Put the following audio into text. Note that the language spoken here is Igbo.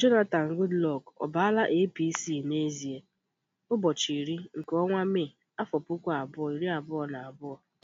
Jonathan Goodluck ọ baala APC n'ezie? Ụbọchị iri nke ọnwa Mee, afọ puku abụọ iri abụọ na abụọ